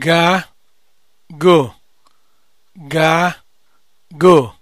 ga go ga go